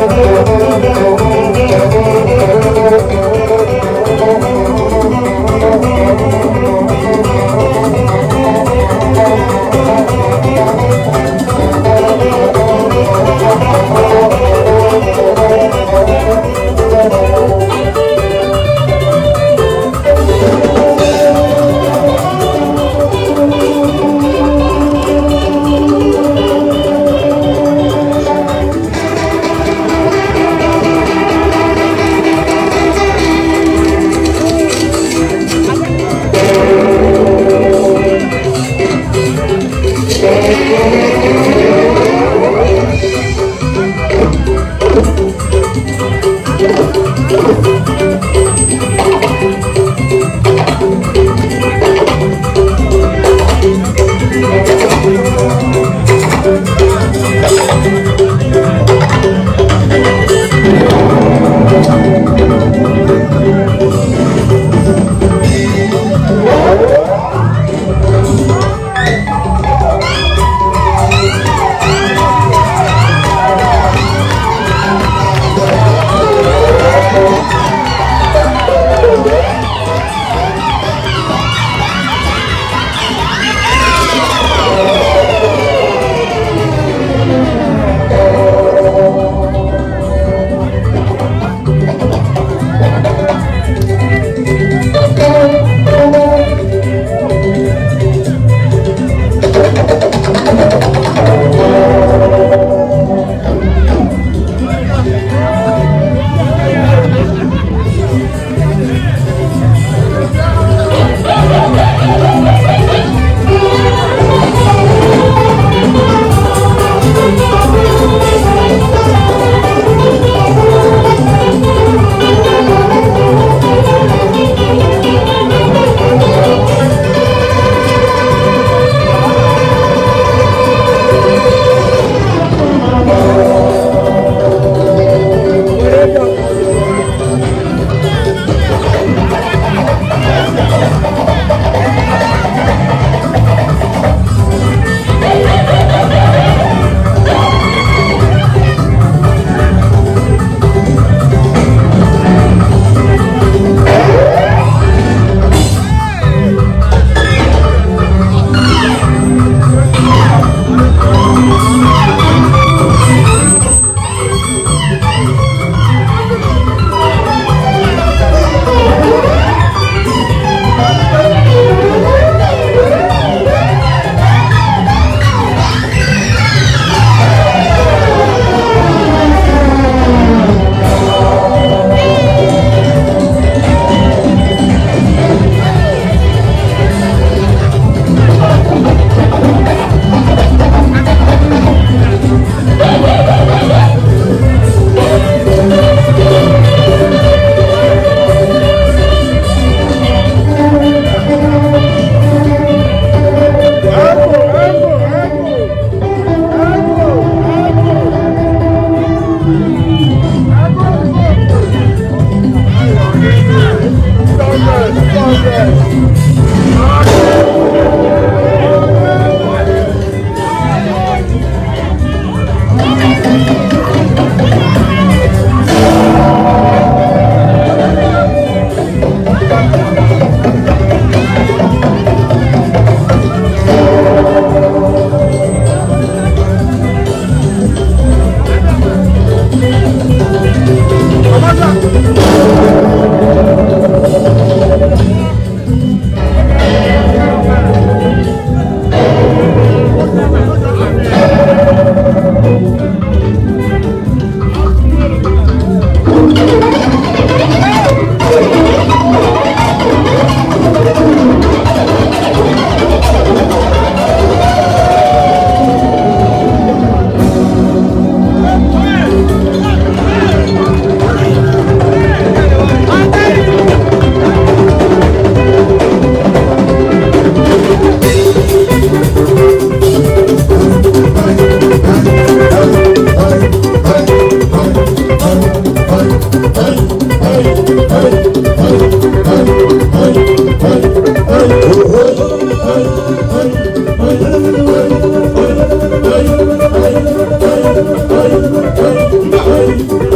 Oh,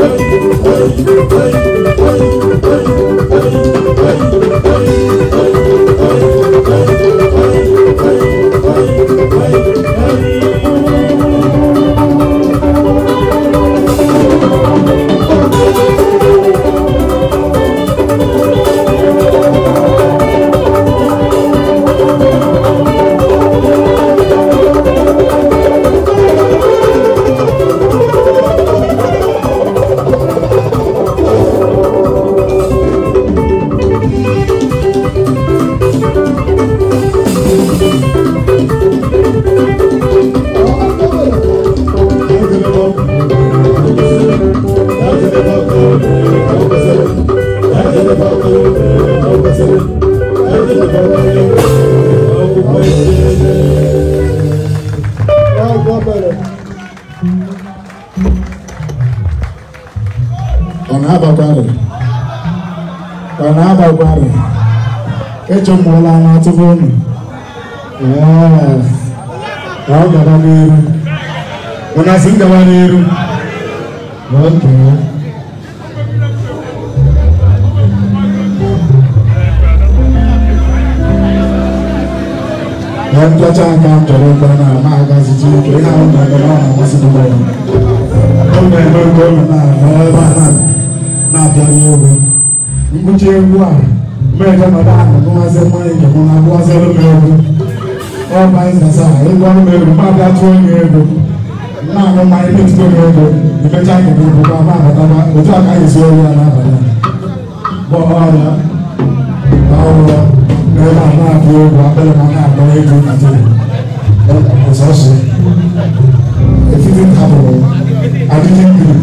Oi, oi, oi, oi, oi. ọ̀nàbà gwara ọ̀nàbà gwara echemụọla na atụfụ unu ọ gaba n'iru ụna si ngaba n'iru okay. na mpịacha aka m chọrọ mgbe na ama agaziji ike ihe ahụ na-eme ọ na dị m ọ na-eme nke ọ na-eme ebe a na-eme na-abịa n'elu mkpuchi egwu a mmeje mata agụmasị mmanya njem na-abụasịrị m egwu ọba ịzasa ịgwa m egwu mmadụ atụọ m egwu na-aṅụ mmanya metụta m egwu imecha akụkụ bụkwa ma abataba otu a ka anyị si oyi ya n'abalị bụ ọrịa na ọrụrụ na ebe a na-abụ egwu akpịrị ma na-akpọ egwu na tebụl ọsọsọ efifin hapụrụ adịghị mmiri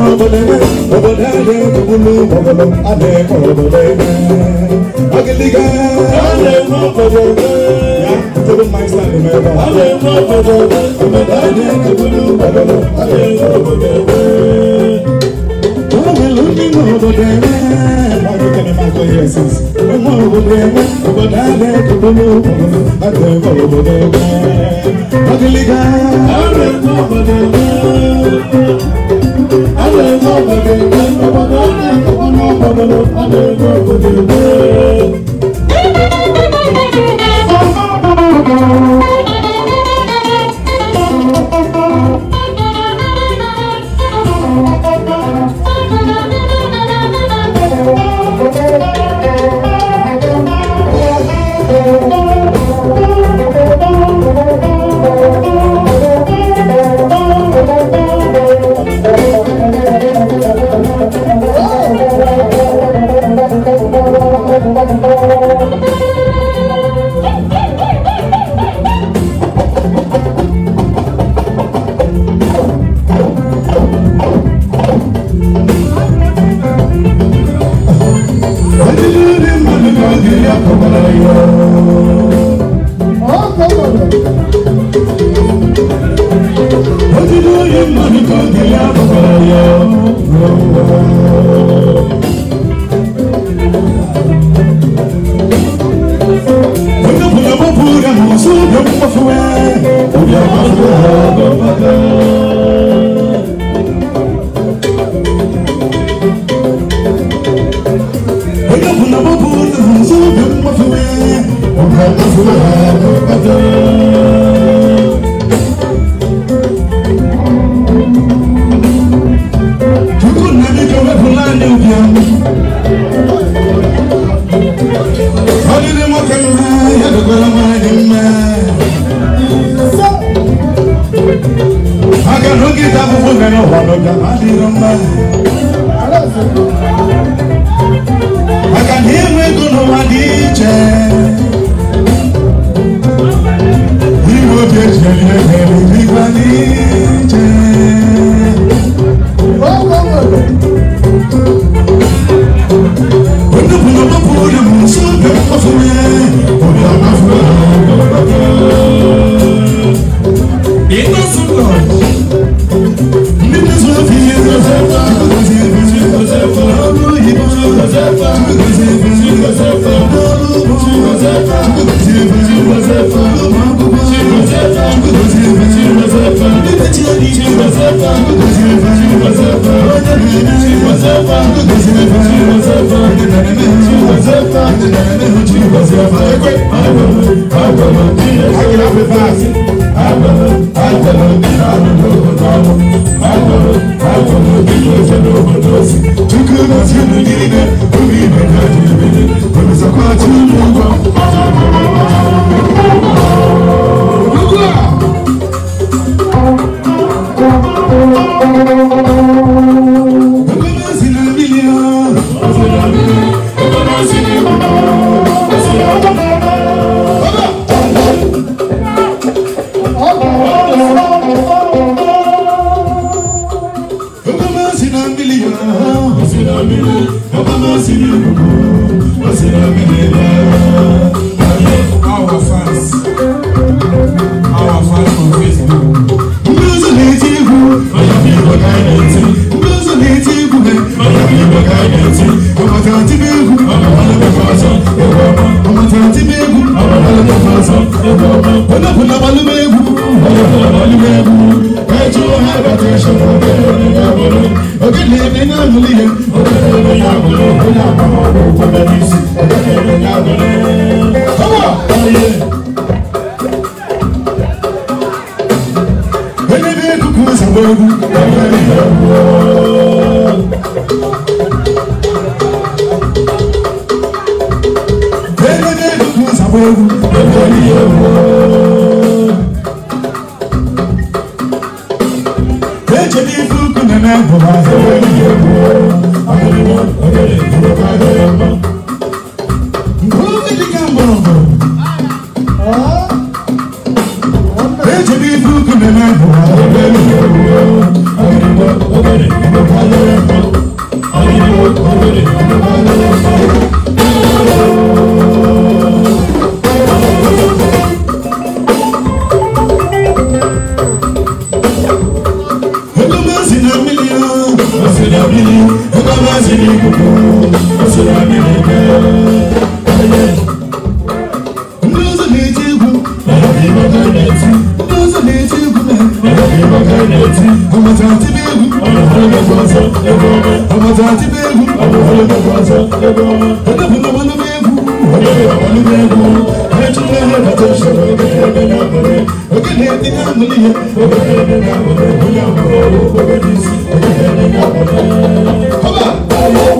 obodo adị ekwugbulu obodo adị ekwe obodo ebe ọgịdịga Todo mais lá no meu bar. Ale mo bobo, obodo adị ekwugbulu obodo adị ekwe obodo ebe. Ọmọbìnrin ní mo obodo ebe. Báyọ̀ kẹ́ni máa kọ́ yẹ sísè. Mo obodo ebe, obodo adị ekwugbulu obodo adị ekwe obodo ebe. Badiliga. Ẹ̀rọ ẹ̀kọ́ bọ̀dẹ̀gbẹ́. Ẹ̀rọ ẹ̀kọ́ bọ̀dẹ̀gbẹ́. Ọ̀bọ̀dọ̀ ọ̀nà ẹ̀kọ́ bọ̀dọ̀ ọ̀bọ̀dọ̀ ọ̀dẹ̀ ẹ̀kọ́ bọ̀dẹ̀gbẹ́. maka na oge ịta n'oge maka na inwe ego dị iche inwe obi eji elie Chukwu na chukwu gịnị na obi ibe na adịghị ebele, obi sakwa chukwu ụgwọ. otu ọha bakọsọ ọbẹrẹ onye chedi fuku na na mo ba se we ni mo agele mi ọkọ máa sì ní kókó ó sì rà mí lẹ́gbẹ́. Ndóso ní ti kú, ọ̀rọ̀ mi bọ̀ ká ní ẹtí. Ndóso ní ti kú mẹ́, ọ̀rọ̀ mi bọ̀ ká ní ẹtí. Ọmọ tí a ti bí egwu, ọ̀rọ̀ fún ẹgbẹ́ fún ọ̀sán ẹgbẹ́ ọmọ. Ọmọ tí a ti bí egwu, ọ̀rọ̀ fún ẹgbẹ́ fún ọ̀sán ẹgbẹ́ ọmọ. Ẹgbẹ́ fún ọmọ ló bí egwu, ọ̀rọ̀ fún ọmọ ló bí egwu. Ẹ Come on.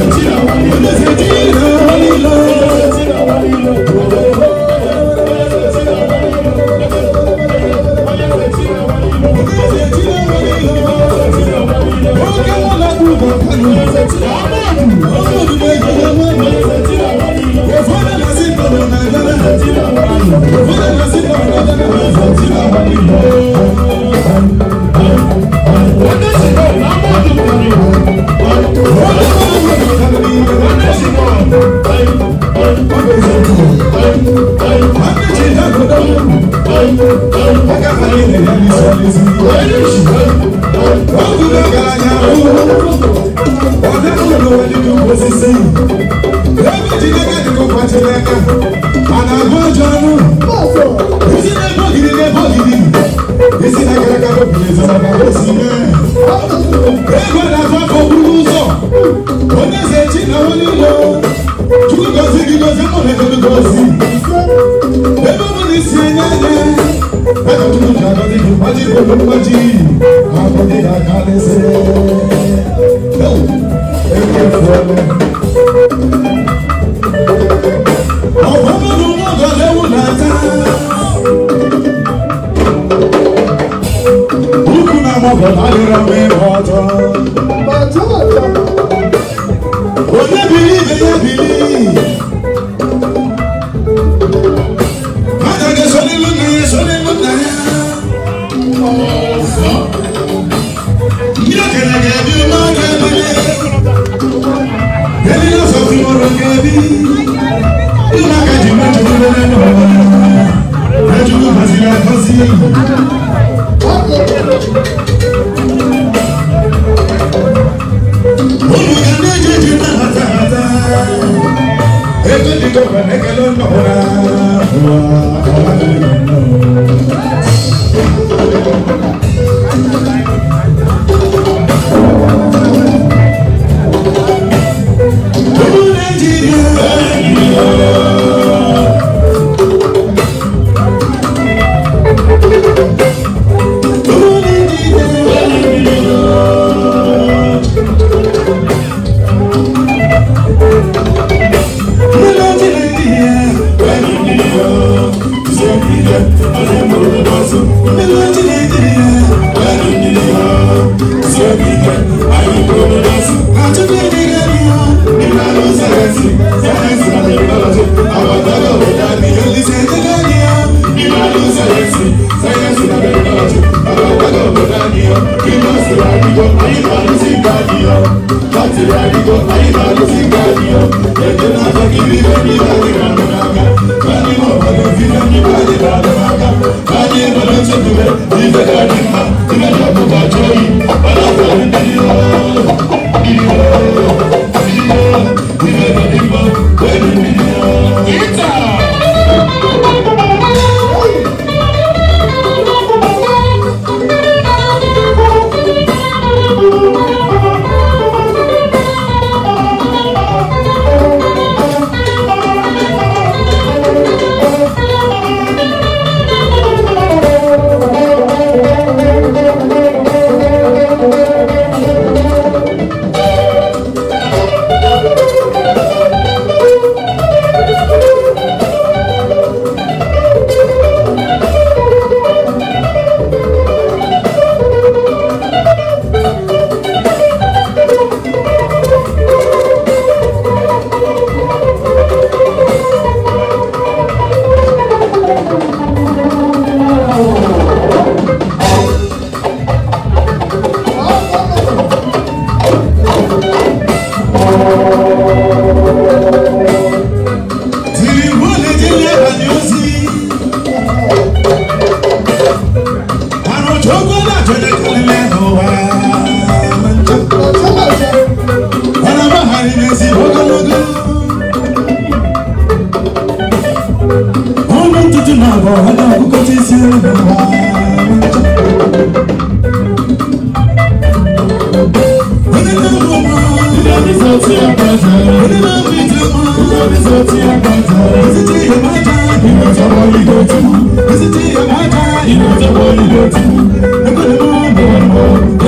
Lord Jesus, I'm going to tí ó bàjẹ́ onímọ̀ mi tó mú oníṣẹ́ tí ó bàjẹ́ èsì tí yóò má já ìwé ìjọba ìlú tó mú èsì tí yóò má já ìwé ìjọba ìlú tó mú ẹgbẹ́ ni mo bọ̀ ọ́.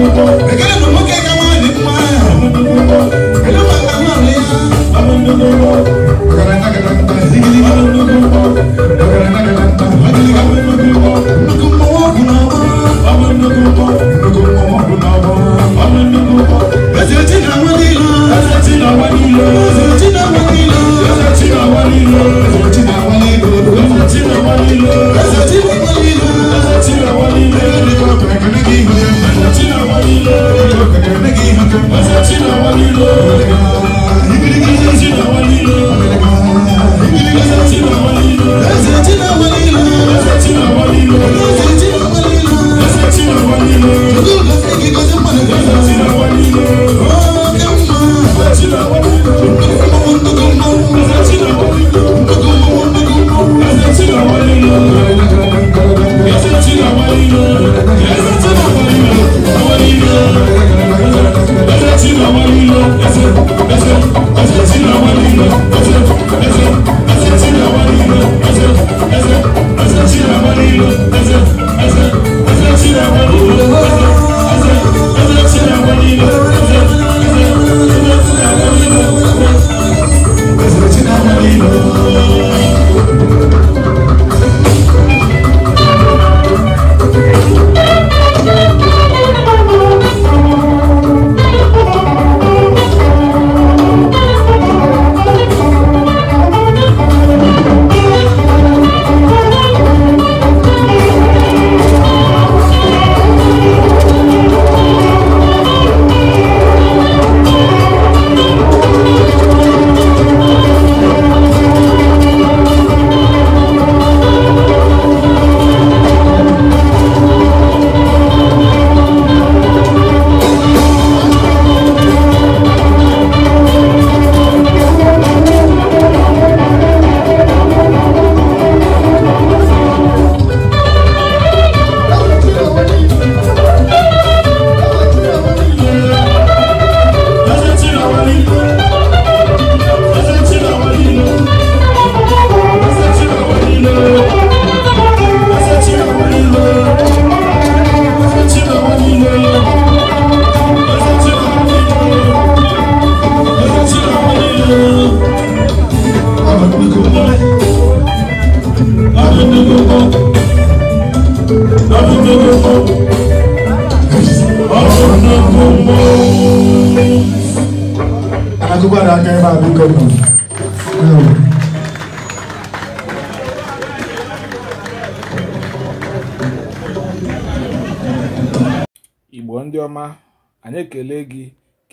you want.